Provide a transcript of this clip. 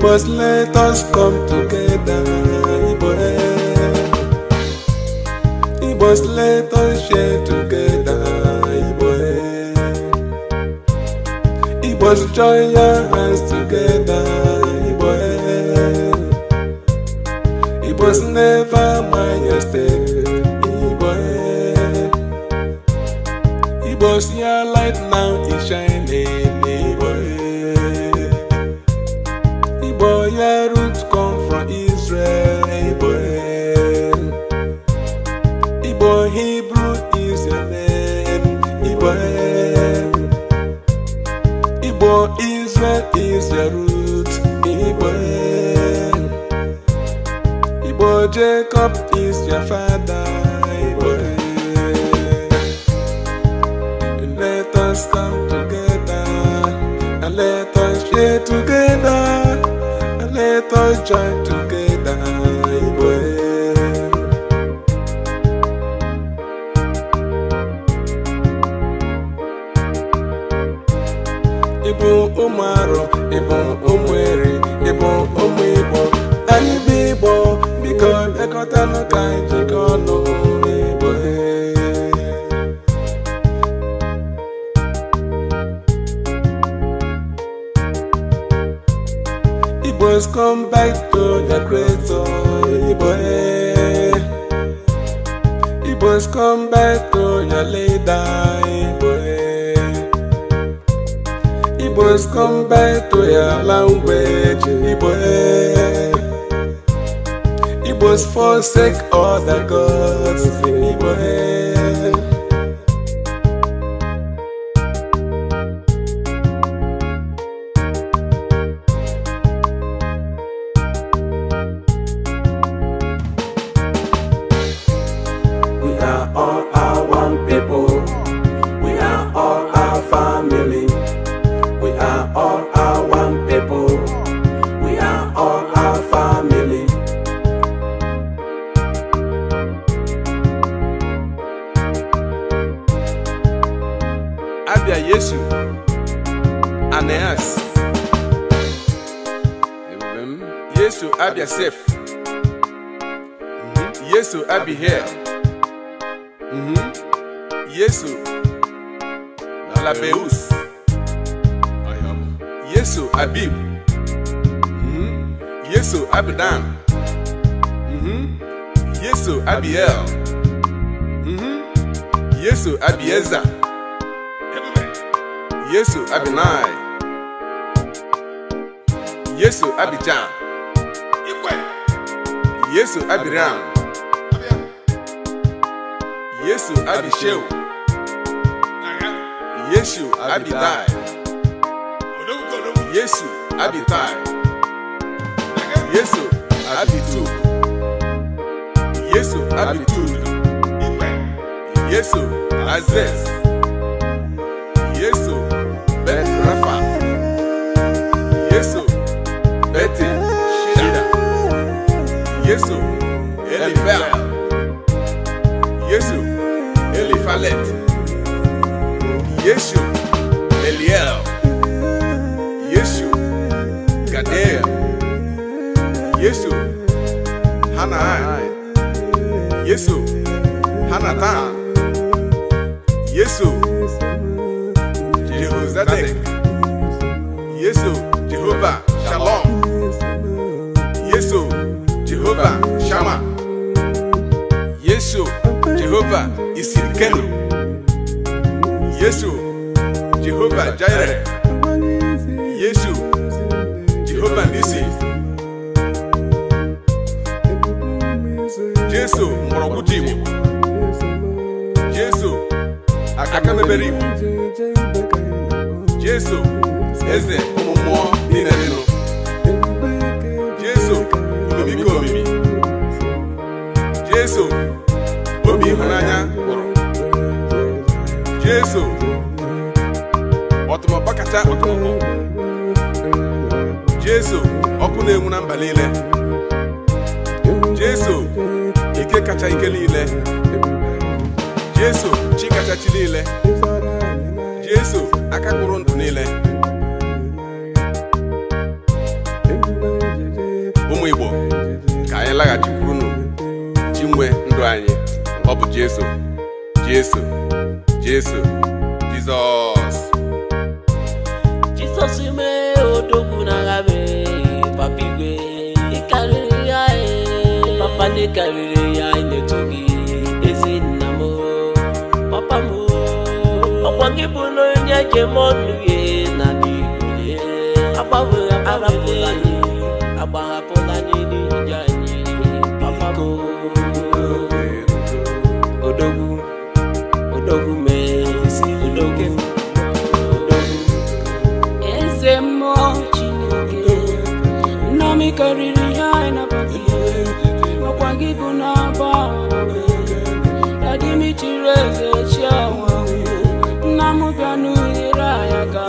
must let us come together. Iboe. He must let us share together. Iboe. He must join our hands together. was never Jacob is your father. Let us come together and let us share together and let us join together. ekọtalụ ka anyị jikọ ọnụ n'igbo Igbos come back to their creator Igbo Igbos come back to your leader Igbo Igbos come back to your language Igbo Was forsake all the gods in head. We are all Bíblia Yeshu, Aneas. Yesu Abi Yasef. Yeshu Abi Her. Yeshu Labeus. Yeshu Abib. Yesu mm-hmm. Abdam. Mm-hmm. Mm-hmm. Yesu Abiel. Yesu Abieza. Yesu Abinai Yesu Abidjan Yesu Abiram Yesu Abisheu Yesu Abidai Yesu Abitai Yesu Abitu Yesu Abitu Yesu Aziz Yesu, Eliphal. Yesu, Eliphalet. Yesu, Eliel. Yesu, Gadel. Yesu, Hanai. Yesu, Hanatan. Yesu, Jehozadak. Yesu. Jehova isirikenu Yesu Jehova Jireh Yesu Jehova Nisi Jesu mgbọrọgwụ ji Igbo Jesu aka mebere Jesu eze ụmụ mmụọ niile nụ Jesu omimi ka omimi Jesu obi ịhụnanya gwụrụ jesu ọtụmọkpa kacha ọtụmọkpọ jesu ọkụ na-enwu na mba niile jesu ike kacha ike niile jesu chi kacha chi niile jesu aka gwụrụ ndụ niile ụmụ igbo ka anyị laghachi jesu jesu jesu jesus jesus ime otokuna ngabe papigwe ikari yae papa nikarire yae netoki ezinamo papa mu okwangibunonyakemonuye ikariri yaena pai okwangibuna bae adimitirezechawa namupyanuyira yaka